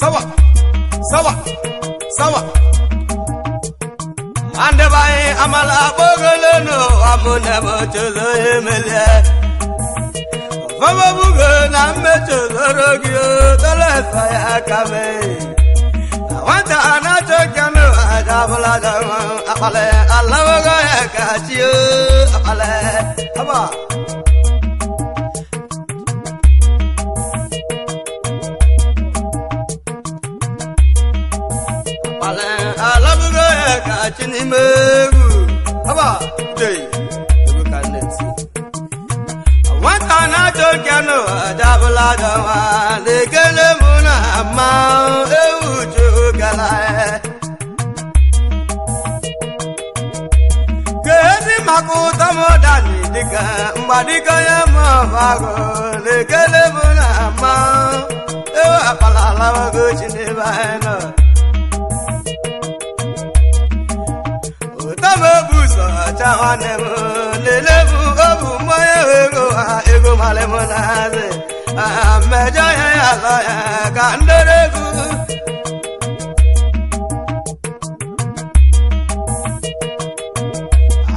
sawa sawa sawa andebanye amala kpogolenu amunemocholoemele famobugo na mmechozoro gị tolesa ya kame nwata anachokanu ajabụladama akpale alawogo ya kachio akpale aba meru haba dey we can let want an ato kano adabla dawa le gele muna ma e uju gala kedi makuta modani dika mbadika ya mabago le gele muna ma e apala lawa go chinebana ya nwanne m lelebu obu mmanya ego ego malịmụ na azị mmejọ ya ya lọ ya ka ndoro egwu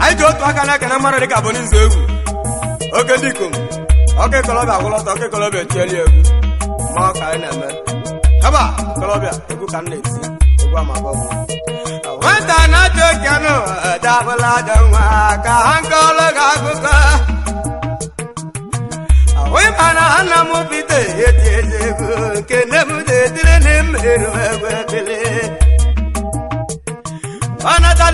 anyị ji otu aka na-ekene mmadụ dịka bụ n'izu egwu oke dịkom oke kolobịa gwụlọtọ oke kolobịa echieli egwu ma ọ ka anyị na-eme ebe a kolobịa egwu ka m na-esi gwa ma gwa nwata na-atọ kenu dabụla dị nwa ka ha ga gị akụkọ ahụghị mana nna m bido eti eze ego nke nne m detire na mmerụ egwu ebili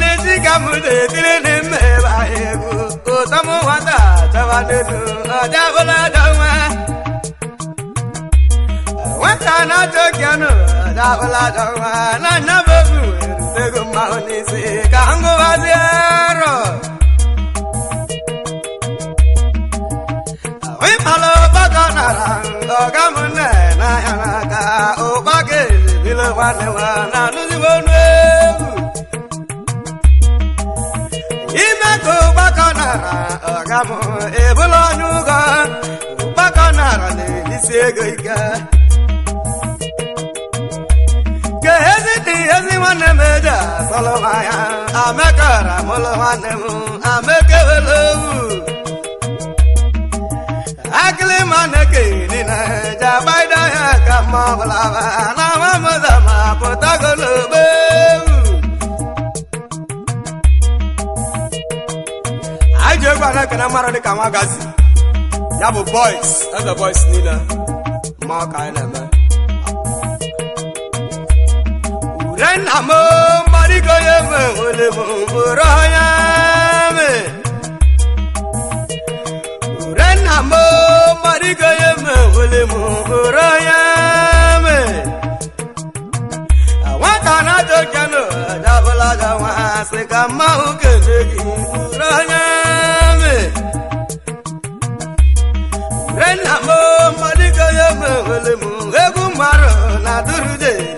n'ezi ka m detire na nwata dị na dabaladaa na nnabebu ego mmahụ n'isi ka m gụbazie arọ ịkpala ụkpaka nara ọga m nne n'ahịa n'aka ụkpaka ezibile nwanne nwa na anụzibe ọnụ ewu ime ka na nara ọga m ebula ọnụ ụgọ ụkpaka nara na isi ego ike nwanne m eji asọlụ nwanya amekara mụlụ nwanne m na-eke niile ji agbaide ọhịa ka na anyị ji egwu ya bụ boys eze boys niile ma ọ ka anyị na-eme Renda mo marigo ye me ole bumbura ya me. Renda mo marigo ye me ole bumbura ya me. Awanta na jogano, jabla jawa se kama ukezi.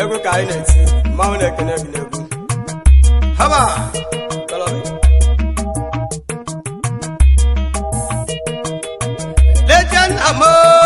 egwu ka anyị na-eti mmanwụ na-ekene haba legend amor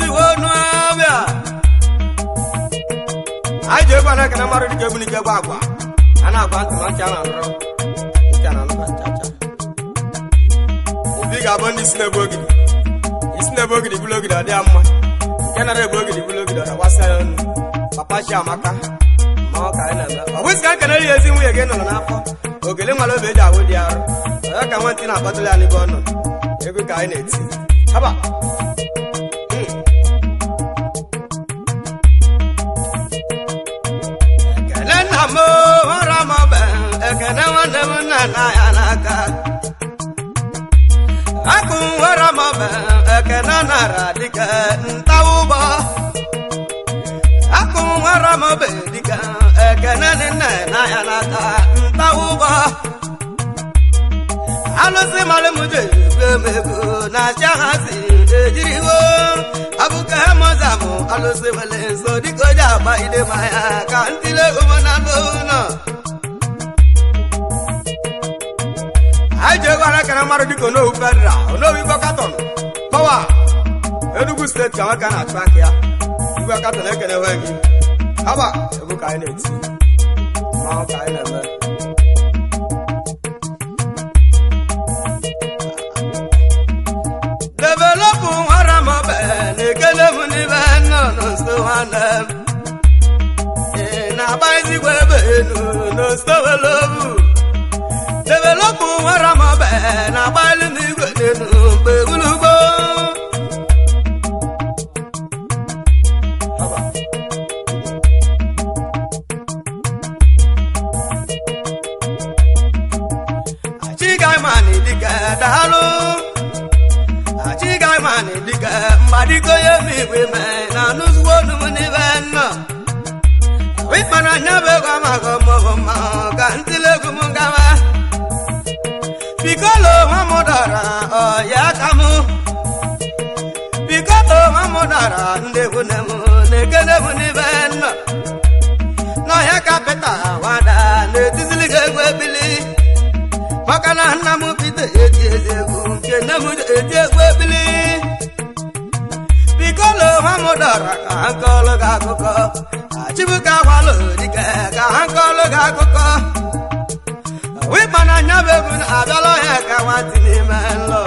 anyị ji egwu ana ekene mmadụ dịka egwu n'ike bụ agwa a na-agba ntị na ntị a na-anụrụ ntị a na-anụ nchacha obi ga-abụ ndị isi na-ebu ogidi isi na-ebu ogidi bụrụ ogidi ọ dịa mma nke nara ebu ogidi bụrụ ogidi ọ dagbasa ya ọnụ papa chi amaka ma ọ ka anyị na-eme ọ bụzi ka nkenere ya ezi nwunye gị nọrọ n'afọ ogele nwere obi eji ahụ dị arọ ọ ya ka ntị na-akpatụla ya n'ebe ọnụ nọ ka anyị e na-eti haba nwanne m ya akụ Ramo ekene nara dịka ntaụgbọ akụ Ramo dịka ekene dị nna ya n'aka ntaụgbọ alụsị mara mụdegomego na-achị ha si ejiriwo abụka moza bụ alụsị nwere nso dịka oji agba idemaya ka ntịle ụmụna n'ụlọ anyị ji ego arakara mmadụ dịka onowu federal onowu igwe katọn pawa enugu steeti ka nwoke na-achụ aka ya igwe katọn ekenewe gị haba egwu ka anyị na-eti mmanwụ ka anyị na-eme nwanne m ị na-agbazigwe ebe elu n'ostowelou developụ nwere mabe na-agba ụdara ndegwu na m na-egenegwu n'ibe nọ n'ọhịa kapịta wada na-etizili ga egwu ebili maka na nna m bido eti egwu nke nne m eti egwu ebili biko na ụha m dọrọ ka ha gị akụkọ achibuka ka ha gị akụkọ wịkpa na anya bụ egwu na-abịala ọhịa ka n'ime nlọ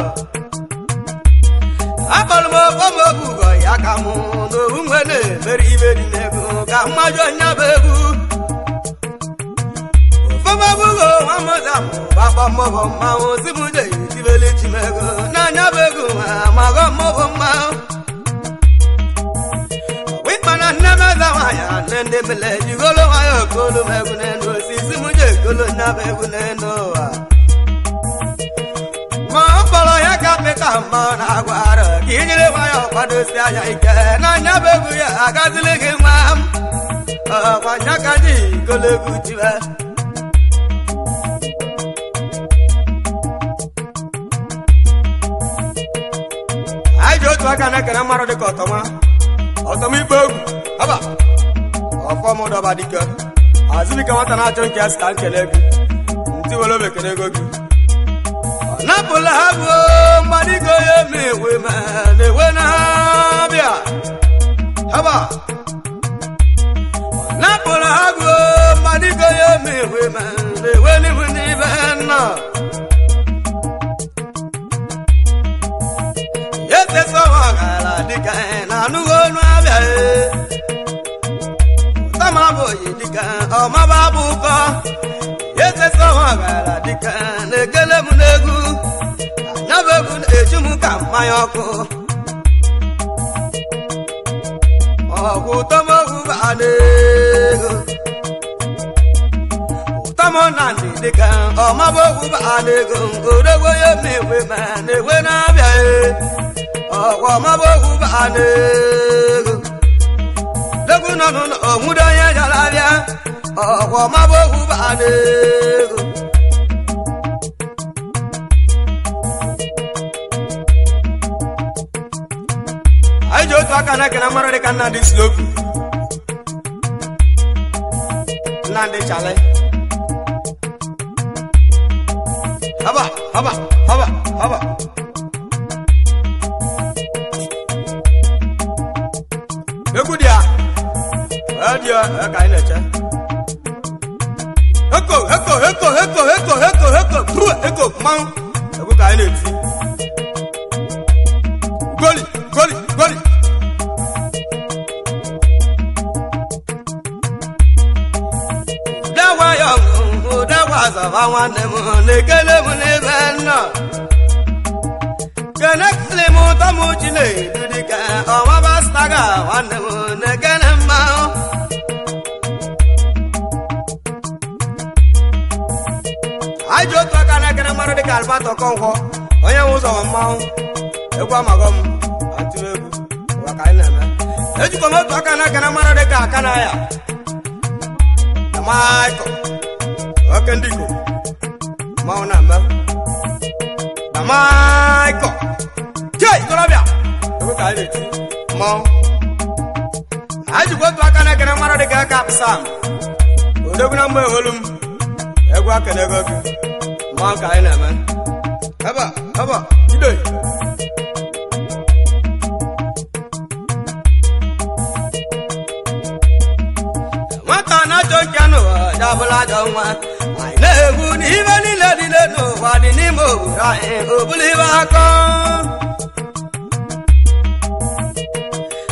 akpọrọ m okpomọbụgo ya ka mụ n'owu mgbe na-emeri imeri n'ego ka mmaju onye bụ egwu okpomọbụgo nwa mụta mụ gbakpọ mmọbụ mmanwụ zibụde itibeli chimego n'anya bụ egwu ma mago mmọbụ mmanwụ wikpana nne meza nwanyị nne ndị mele jigolo nwanyị okolu m egwu n'elu osisi mụje ekolo nya egwu n'elu ụwa ọpịka mmanụ agwara ka i nyere nwa ya ọkwadosi anya ike ọ bụ egwu ya agazili gị nwa m ọkwanyaka dị golegwu jiwe anyị ji otu aka na-ekere mmarụ dịka ọtọma ọtọma ikpe egwu aba ọfọmdọba dike azụbika nwata na-achọ nke ya sita nkele egwu ntị were ego gị napụla ha bụ mmadụ ya na na-ewe haba napụla ha bụ mmadụ ya na-ewe ma na-ewe n'ihu n'ibe nna etesa ọghara dịka na anụghị ọnụ abịa eh. tamabụghị dịka ọmaba eteta ọghara dịka na-ekele m n'egwu anyabebụ na m ka mmanya ọkụ ọgwụ ụtọmowu baanaego ụtọmọna ndị dịka ọmabogwu baanaego odogbo ya na-enwe ma na na-abịa ọgwụ ọ̀wọ̀ má bóhu bá lè. Ajo tu akana kena mara de kana di slope. Nande chale. Haba, haba, haba, haba. Ekudia. Adio, eka ina cha heko heko heko heko heko heko heko bru heko kpam ẹkú ka ẹ lè fi goli goli goli. dáwà yọ nkùnkùn dáwà sàfà wọn ni mu nìkélé mu ní bẹ́ẹ̀ nà kẹ́nẹ́kìlì mu tọ́mù jìnnà ìdúdí kẹ́ ọ̀wá bá sàgà wọn ni mu nìkẹ́. Alberto Okonkwo onye nwe ụzọ mmanwụ egwu amagọ m maka anyị na-eme ejikọ m otu aka na aka na mara dị ka aka na ya na oke ndị Igbo mmanwụ na-eme na maịkọ ka anyị na-eti ma na-eme nwata na nwa anyị niile dị n'ụwa dị n'ime obodo anyị obụla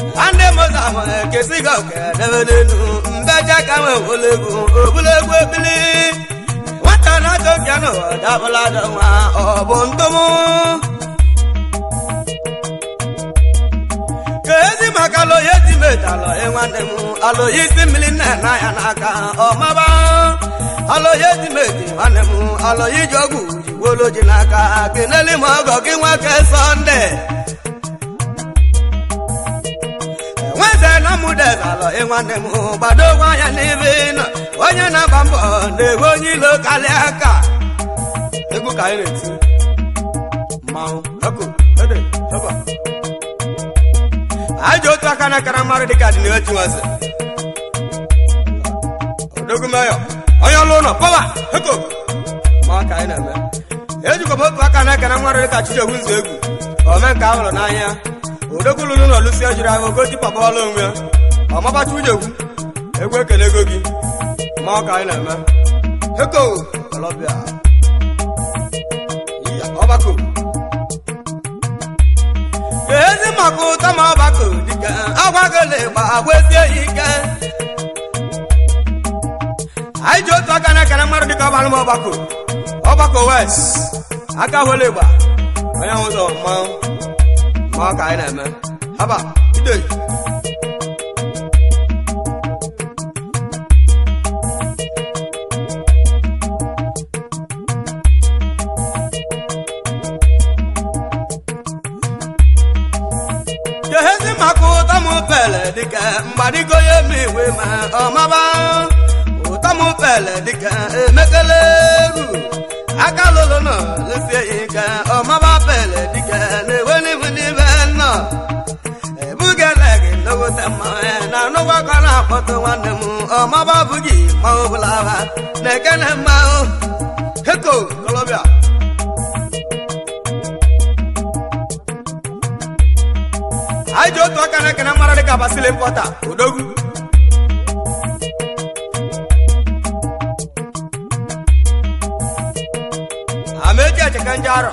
nwanne m ga-ahụ ekesi gị n'elu mbeje ka nwe ebili dabla dama obondomo kezi makalo yeti metalo enwandemu alo yisi miline na ya n'aka ọmaba alo yeti meti nwanemu alo yijogu jiwolo ji n'aka keneli m ọgọ gị nwoke bado wanya ịnwanne m gbadogwa na-agba mbọ na-ewe onye egwu ka anyị na-eti mmanwụ ọkụ otu aka na akara mmadụ dịka dị na nwaze onye ọlụ ụlọ pọwa ma ka anyị na-eme otu aka na akara dịka nzu egwu ome nke n'anya ụlọ ejiri ahụ ọlụ onwe egwu egwu ekele ego gị ma ka anyị na-eme ọkụ tọmọ ọbakụ dike ọgwagole gba agwesie ike anyị ji otu aka na-ekene mmadụ dịka ọbalụ ọgbakọ ọgbakọ wes aka hụle gba onye hụzọ ma ọ ka anyị na-eme haba idei maka ụtọ m pele dịka mgbadigo ya eme iwe ma ọmaba ụtọ m pele dịka emekele eru aka lụlụ nọ lesie ya ka ọmaba pele dịka na-ewe n'ihu n'ime nọ ebugele gị logote mmanya na anụgbakọ na-akpọtụ nwanne m ọmaba bụghị ma ọ bụla ha na-ekene mmanụ heko kolobia anyị ji otu aka na ekene mara dị ka basili mpọta odogwu ameji echeka nje arọ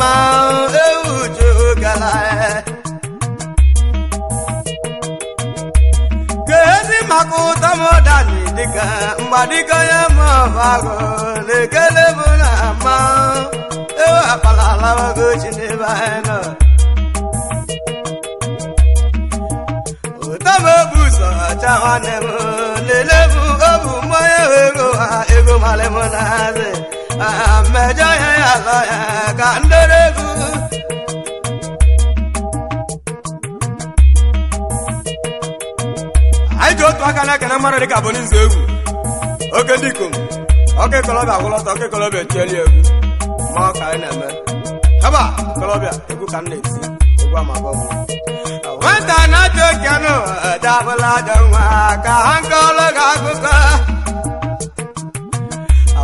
ma ewu jụgara e. ka ezi maka ụtọ m dani dịka mgbadịka onye mọbagụ na-ekele bụ na ma ewu akpala alawagochi n'ebe anyị nọ ụtọ m obu ụzọ ọcha nwanne m lelee bụ obu mmanya ego ha ego malị m na-azị anyị ji otu aka na-ekene mmadụ dịka bụ n'izu egwu oke ndị ikom ọka ikolobịa agwụlọta ọka ikolobịa echieli egwu ma ọ ka anyị na-eme haba ikolobịa egwu ka m na-esi egwu amabọ nwata na-atụ oke anụ dabụla dị nwa ka ha nkọlụ gị akụkọ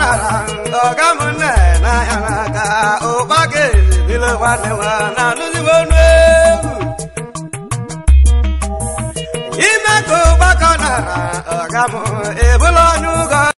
nara ọ̀gá mu nẹ n'ayara ka o pàkejì nílò wa ni wa Ime kò bákan nara ọ̀gá mu èbúlọ̀ nùgọ́.